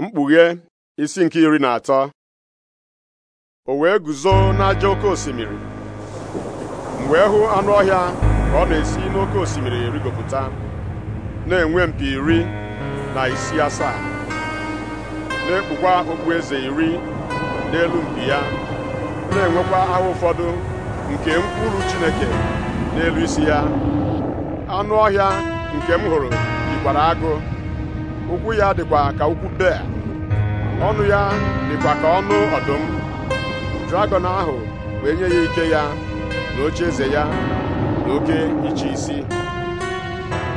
mkpughe isi nke iri na atọ o wee guzo n'aja oke osimiri m wee hụ anụ ọhịa ọ na-esi n'oke osimiri erigopụta na-enwe mpi iri na isi asaa na-ekpukwa eze iri n'elu mpi ya na-enwekwa ahụ ụfọdụ nke mkpụrụ Chineke n'elu isi ya anụ ọhịa nke m hụrụ dịkwara agụ ụkwụ ya dịkwa ka ụkwụ bea ọnụ ya dịkwa ka ọnụ ọdụm Dragon ahụ wee nye ya ike ya na oche eze ya na oke iche isi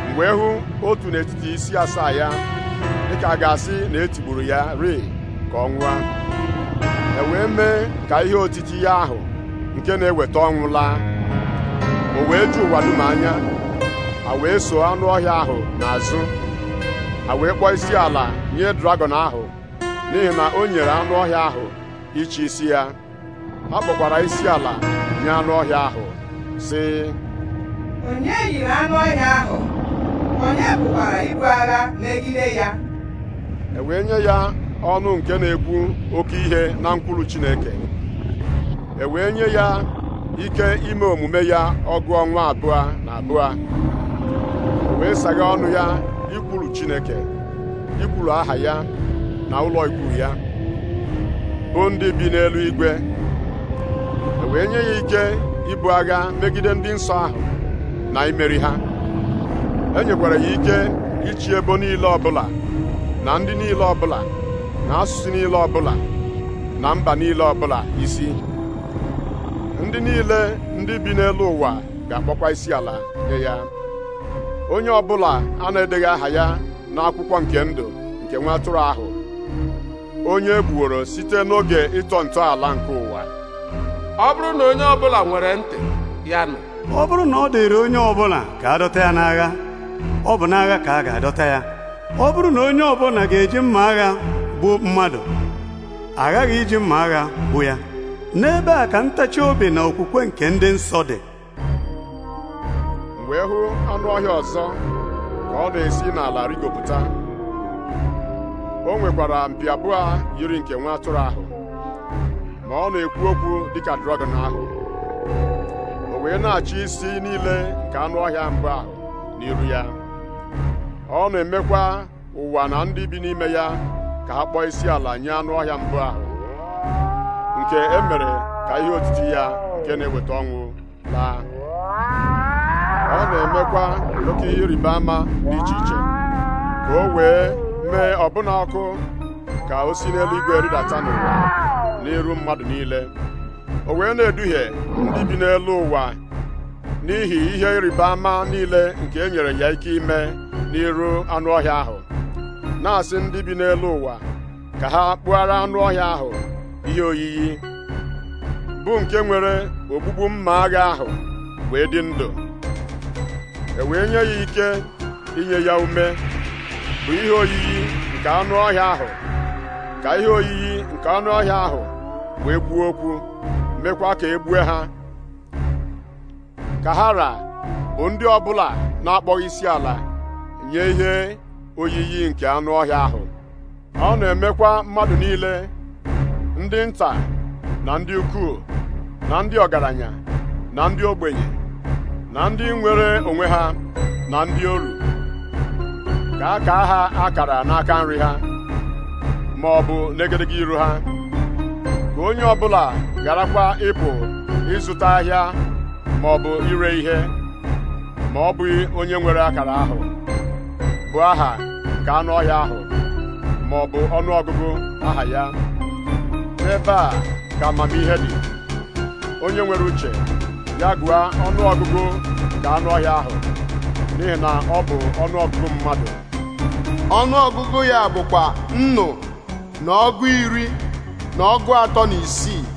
mgbe hụ otu n'etiti isi asaa ya dịka a ga-asị na etigburu ya ring ka ọ nwụọ e wee mee ka ihe otiti ya ahụ nke na-eweta ọnwụ laa o wee ju ụwa dum anya a wee soo anụ ọhịa ahụ n'azụ a wee kpọọ isi ala nye dragọn ahụ n'ihi na o nyere anụ ọhịa ahụ iche isi ya ha kpọkwara isi ala nye anụ ọhịa ahụ sị onye yiri anụ ọhịa ahụ onye bụkwara ibu agha megide ya e wee nye ya ọnụ nke na-ekwu oke ihe na mkpụrụ Chineke e wee nye ya ike ime omume ya ọgụ ọnwa abụọ na abụọ wee saghe ọnụ ya ikwulu Chineke ikwulu aha ya na ụlọ ikwu ya bụ ndị bi n'elu igwe e wee nye ya ike ibu agha megide ndị nsọ ahụ na imeri ha e nyekwara ya ike ichi ebo niile ọbụla na ndị niile ọbụla na asụsụ niile ọbụla na mba niile ọbụla isi ndị niile ndị bi n'elu ụwa ga-akpọkwa isi ala nye ya onye bụla a na-edeghị aha ya n'akwụkwọ nke ndụ nke nwa atụrụ ahụ onye gbuoro e gbuworo site n'oge ịtọ ntọala nke ụwa ọ bụrụ na onye ọbụla nwere ntị ya nụ ọ bụrụ na ọ dịrị onye ọbụla ka a dọta ya n'agha ọ bụ n'agha ka a ga-adọta ya ọ bụrụ na onye ọbụla ga-eji mma agha gbuo mmadụ aghaghị iji mma agha gbuo ya n'ebe a ka ntachi obi na okwukwe nke ndị nsọ dị wee hụ anụ ọhịa ọzọ ka ọ na-esi n'ala rigopụta o nwekwara mpi abụọ yiri nke nwa atụrụ ahụ ma ọ na-ekwu okwu dịka dragọn ahụ o wee na-achị isi niile nke anụ ọhịa mbụ ahụ n'iru ya ọ na-emekwa ụwa na ndị bi n'ime ya ka ha kpọọ isi ala nye anụ ọhịa mbụ ahụ nke e ka ihe otiti ya nke na-eweta ọnwụ laa na oke ihe ịrịba ama dị iche iche ka o wee mee ọbụna ọkụ ka o si n'eluigwe rịdata n'ụwa n'iru mmadụ niile o wee na-eduhie ndị bi n'elu ụwa n'ihi ihe ịrịba ama niile nke enyere ya ike ime n'iru anụ ọhịa ahụ na-asị ndị bi n'elu ụwa ka ha kpụghara anụ ọhịa ahụ ihe oyiyi bụ nke nwere ogbugbu mma agha ahụ wee dị ndụ e wee nye ya ike inye ya ume bụ ihe oyiyi nke anụ ọhịa ahụ ka ihe oyiyi nke anụ ọhịa ahụ wee gbuo okwu mekwa ka e gbue ha ka ha ra bụ ndị ọbụla na-akpọghị isi ala nye ihe oyiyi nke anụ ọhịa ahụ ọ na-emekwa mmadụ niile ndị nta na ndị ukwuu na ndị ọgaranya na ndị ogbenye na ndị nwere onwe ha na ndị oru ka ka ha akara n'aka nri ha ma ọ bụ n'egedege iru ha ka onye ọbụla garakwa ịpụ ịzụta ahịa ma ọ bụ ire ihe ma ọ bụghị onye nwere akara ahụ bụ aha nke anụ ọhịa ahụ ma ọ bụ ọnụọgụgụ aha ya n'ebe a ka amamihe dị onye nwere uche ya gụa ọnụọgụgụ nke anụ ọhịa ahụ n'ihi na ọ bụ ọnụọgụgụ mmadụ ọnụọgụgụ ya bụkwa nnụ na ọgụ iri na ọgụ atọ na isii